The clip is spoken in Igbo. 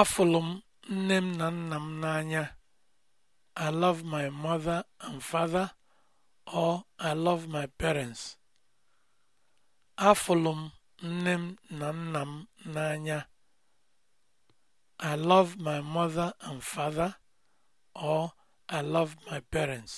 Afụlụ m nne m na nna m n'anya. I love my mother and father or I love my parents. Afụlụ m nne m na nna m n'anya. I love my mother and father or I love my parents.